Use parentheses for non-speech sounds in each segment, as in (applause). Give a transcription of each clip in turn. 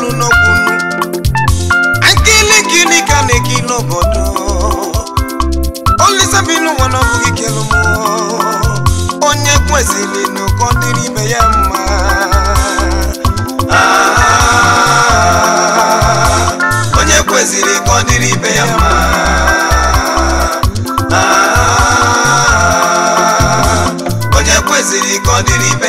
n'elu n'okwu nnu nkili nkili ka na-eki n'obodo olisa bi n'ụwa na ọbụghị kelu m onye kwesịrị n'ụkọ dịrị ibe ya mma onye kwesịrị ka ọ dịrị ibe ya mma onye kwesịrị ka ọ dịrị ibe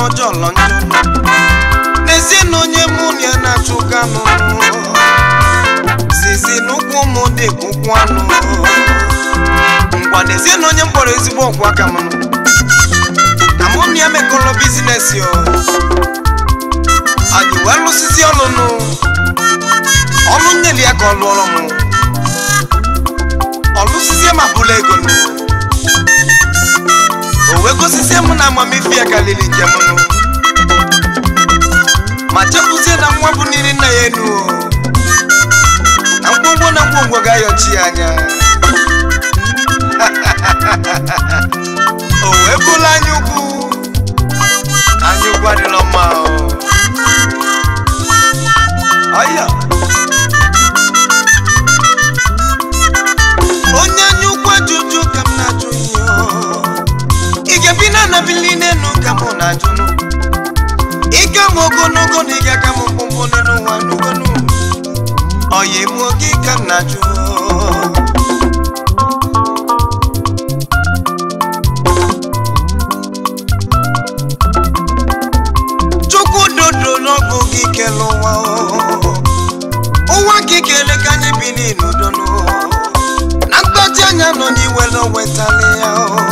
n'ọjọọlọ njọ n'ezie na onye mụ na ya na-achụ ganụ zizi n'ụkwụ ụmụ dị ụkwụ anụ ngwa n'ezie na onye mkpọrọ ezigbo ọgwụ aka m na mụ na ya mekọrọ bizinesi anyị wee lụsịsị ọlụnụ ọlụ nyere ya ka ọ lụọrọ m ọlụsịsị ma bụla ego owego osisi m na ya kalili njem ma chepụzie na nwa bụ n'iri nna ya na mkpụmkpụ na ngwongwo gayo chianya (laughs) uweko anya o wee bụla anya ukwu anya na-anabili n'elu ka mụ na-ajụnụ ike m ogologo na ịga ka m mkpụmkpụ n'elu n'ugonu ọya m ka na-ajụ chukwu dodo n'ọgụ gị kele wa ụwa gị kele ka anyị bi n'udo na mgbaji anya nọ n'iwere wetala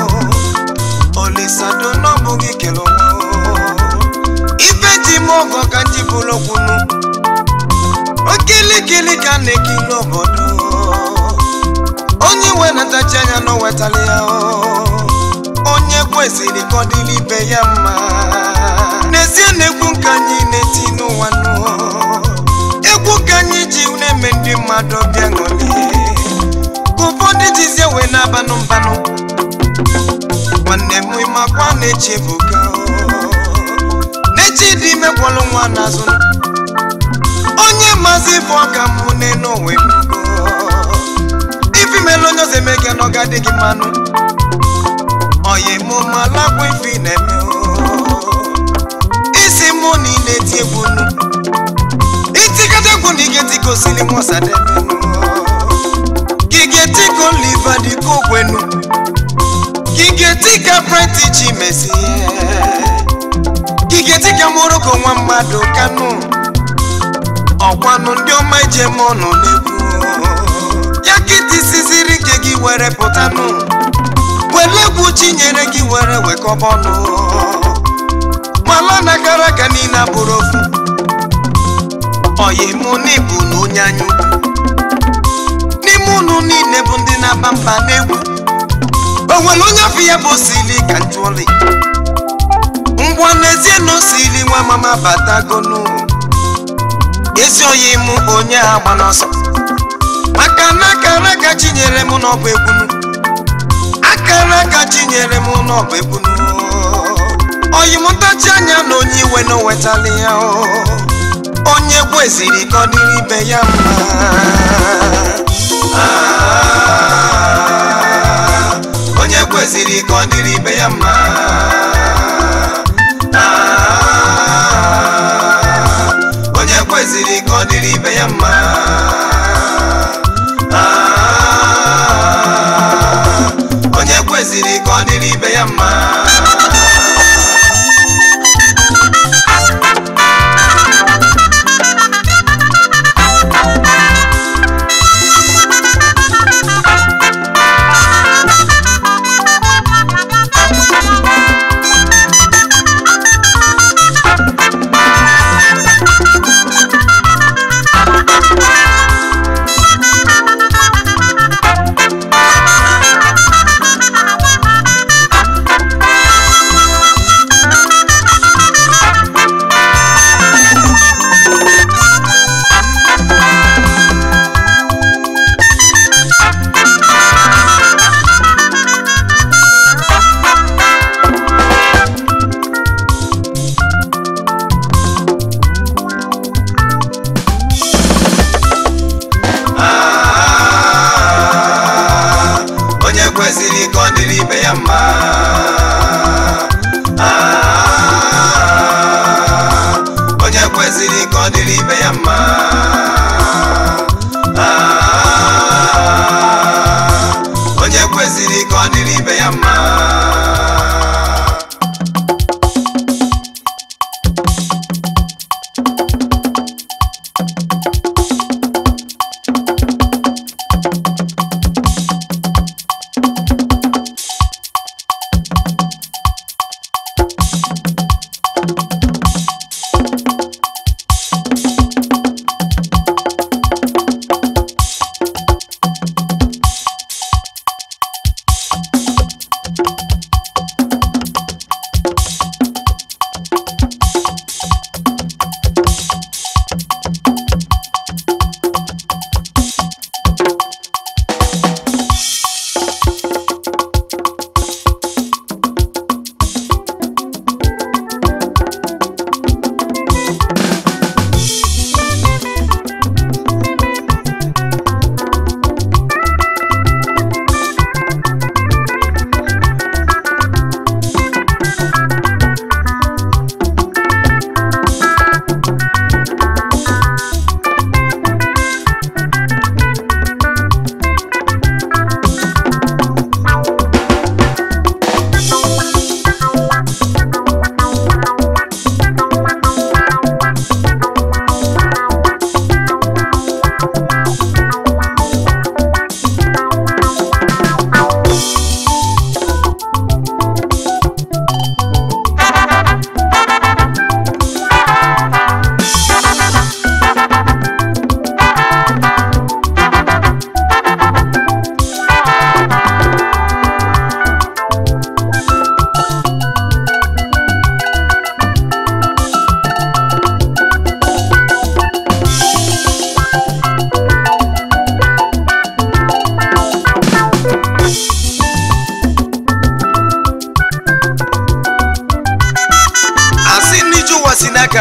isado n'ọbụ gị kele ife ji m ọgọ ka ji bụrụ okilikili ka na-ekili obodo onye iwe natachi anya na ya onye kwesịrị ka ọ dịrị ibe ya mma n'ezie na egwu nke anyị na-eti n'ụwa nụọ ka anyị ji na-eme ndị mmadụ bịa ṅụlie ụfọdụ jizie wee na-abanụ mbanụ nwanne m ịmakwa na-echebuga n'echi dị mekwalụ nwa n'azụ onye mazi bụ ọka mụ n'enwe ife mele onye ọzọ eme gị n'ọga dị gị mmanụ oyi mụ malakwa ife na-eme isi mụ na ị na-eti egwu nu itikata egwu na ige tiko sili mụ sadebe gị ga-etiko liva dịka okwenu dịka prenti ji mezi gige dịka moroko nwa mmadụ kanụ ọkwanụ ndị ọma je m ọnụ n'egwu ya kịtị siziri nke gị were pụtanụ were chi nyere gị were wekọbọnụ gbala na gara aga niile abụrụ okwu ọyimụ n'ibu na onye anyị ukwu n'ime ụnụ niile bụ ndị na-aba mba n'egwu o nwere onye afọ ya bụ osili ka ntụli ngwa n'ezie na osili nwa mama batagonu ezi oyi m onye a gba n'ọsọ na akara aka chinyere m n'ọbụ egbunu akara aka chinyere m n'ọbụ oyi m anya na onye iwe na owetala ya onye gweziri eziri kọdịrị ibe ya mma ah. kwesịrị ka ọ dịrị ibe ya mma onye kwesịrị ka ọ dịrị ibe ya mma onye kwesịrị ka ọ dịrị ibe ya mma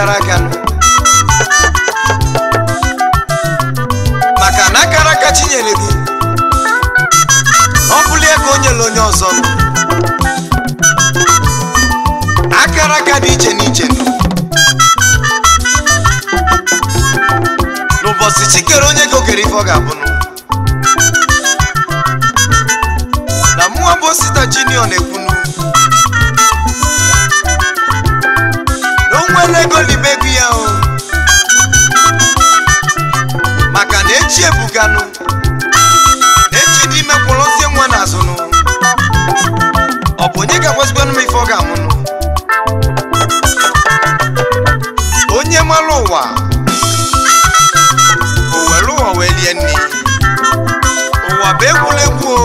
aka maka na akara aka chinyere gị ọ bụla ego o nyere onye ọzọ akara aka dị iche n'iche n'ụbọchị chikere onye ego ife ọ ga-abụ na mụwa bụ junior na-ekwu nwere ego n'ime ego ya o maka na echi ebuganụ echi ime kwụrụzie nwa azụnụ ọ bụ onye ga-agwazigwanụ m ife ọ ga-amụnụ onye mara ụwa o were ụwa wee lie nri ụwa bụ egwuregwu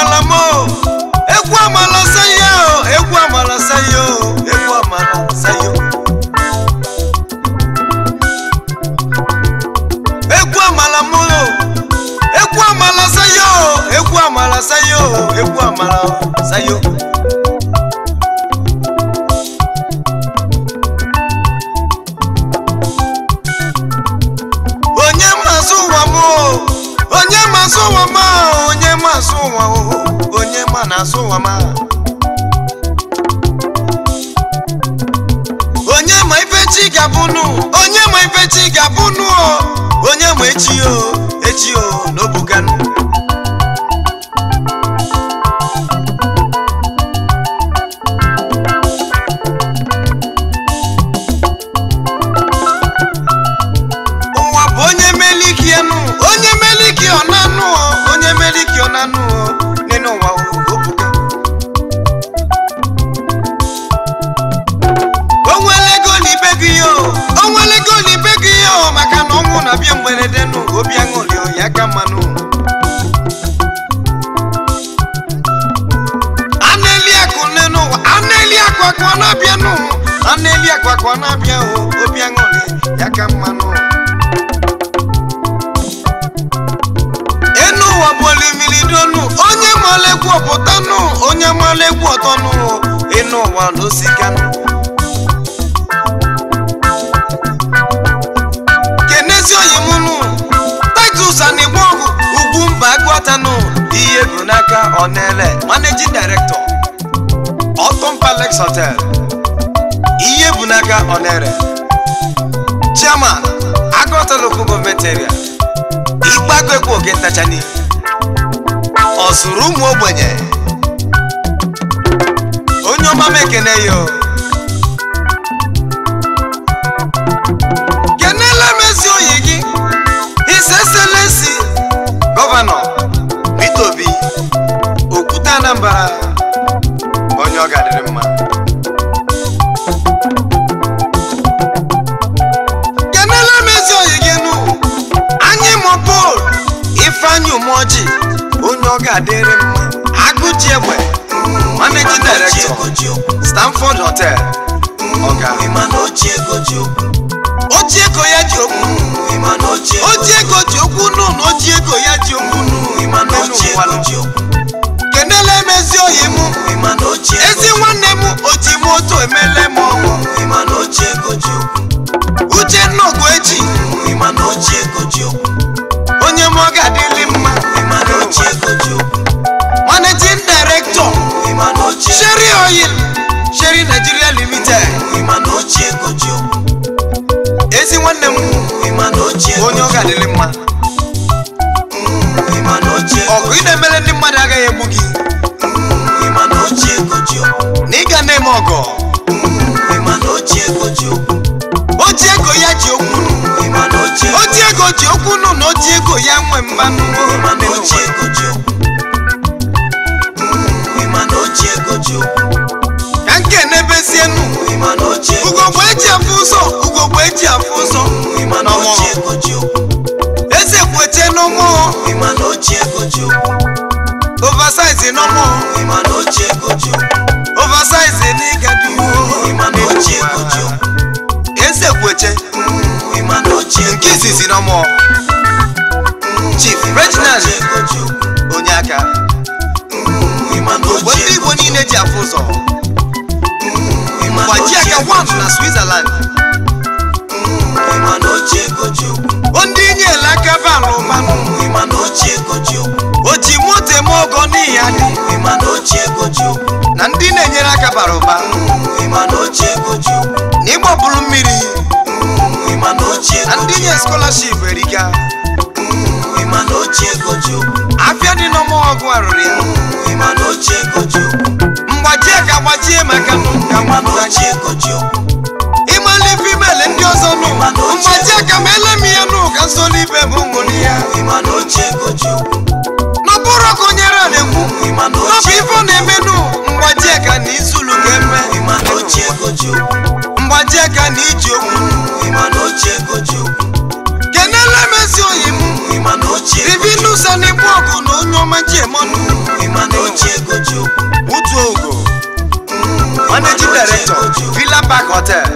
amala m egwu amala sayo egwu amala sayo egwu amala sayo egwu amala m egwu amala sayo egwu amala sayo egwu amala sayo na-asụ ụwa ma onye ma asụ ụwa onye ma na-asụ ụwa ma onye ma ife chi ga-abụnụ onye ma ife chi ga o onye ma echi o echi o n'obuganụ ọwụ na bịa mgberede nụ obi aṅụrị ya ka mmanụ aneli akụ na akụ ọ na-abịa nụ akụ na-abịa obi aṅụrị ya ka mmanụ enu ụwa bụ olimiri onye maala egwu ọpụtanụ onye maala egwu ọtọnụ enu ụwa ezi oyi m nụ Titus na ugwu mba agụọtanụ ihe bụ n'aka Onele managing director Otom Palace Hotel ihe bụ n'aka Onere chairman agụọta local government oge ntachani ọ zụrụ ụmụ ogbenye onye ọma m ekene ya steeti Anambra onye ọ ga-adịrị mma kenele mezi onye gị nụ anyị mụpụl ifeanyị umeoji onye ọ ga-adịrị mma agụji egbe mm, managing director Stanford Hotel mm, ọga ojiego ya ji okwu ojiego ji okwu nụ na ego ya ji okwu nụ n'ụwa ezi oyi mụ ezi nwanne mụ oti m otu emele m uche ọgụ echi onye m ọ ga-adịli mma managing director sheri Oil Sherry Nigeria Limited ezi nwanne m onye ọ ga-adịli mma ọgụ ị na-emere ndị mmadụ agaghị egbu gị m ọgọ mm, oji ego ya ji okwu mm, oji ego ji okwu nụ na oji ego ya nwe mmanụ ka mm, e nke n'ebezienu ugogbe eji afụ ụzọ ugogbe eji afụ ụzọ eze kwete n'ụmụ oversize n'ọmụ emphasize n'ịgadi eze kweche nke izizi na mụọ chief reginald onye aka mgbe ndị igbo niile ji afụ ụzọ gbaji aka wam na switzerland ndị inyela aka balụ o ji moto eme ogo n'ihi adị na ndị na-enyere aka bara ụba mm, na ịgbapụrụ mmiri mm, na ndị nye skọlaship erika mm, afịa dị n'ọmọgwụ arụrụ ya mgbachie ka gbachie maka ịmalụ female ndị ọzọ nụ mgbachie ka ma ele m ihe nụ ka nsoli ibe bụ nwụrụ ya n'ọbụrụ ka onye ra na-ekwu n'ọbụ ife na-eme gbajie ka na iji okwu kenele m ezi oyi m divinusa na ọgụ na onye ọma ji emonụ otu ogo mm, managing director Villa Park Hotel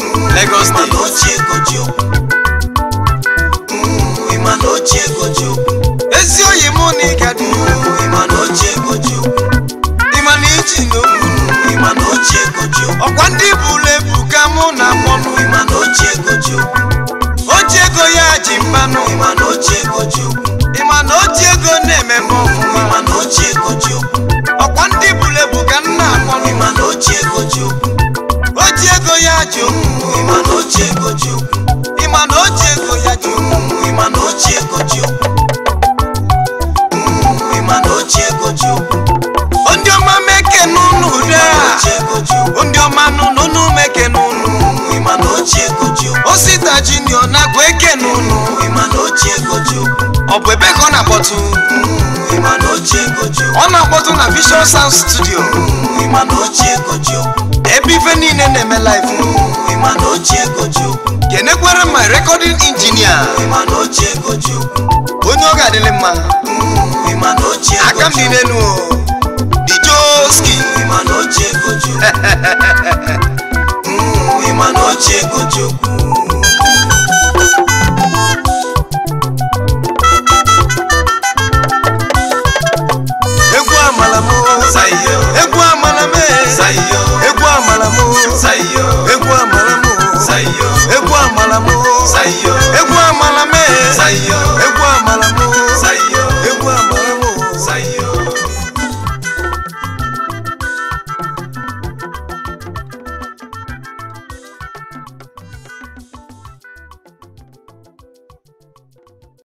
mm, Lagos State junior na gweke nunu. ịma goju ọ bụ ebe ka na-akpọtụ ịma goju ọ na na vision sound studio ịma goju ebe ife niile na-eme live ịma na ochie goju kenekwere my recording engineer ịma goju onye ọ ga mma ịma mm, goju aka m dị n'elu dijoski ịma goju ịma goju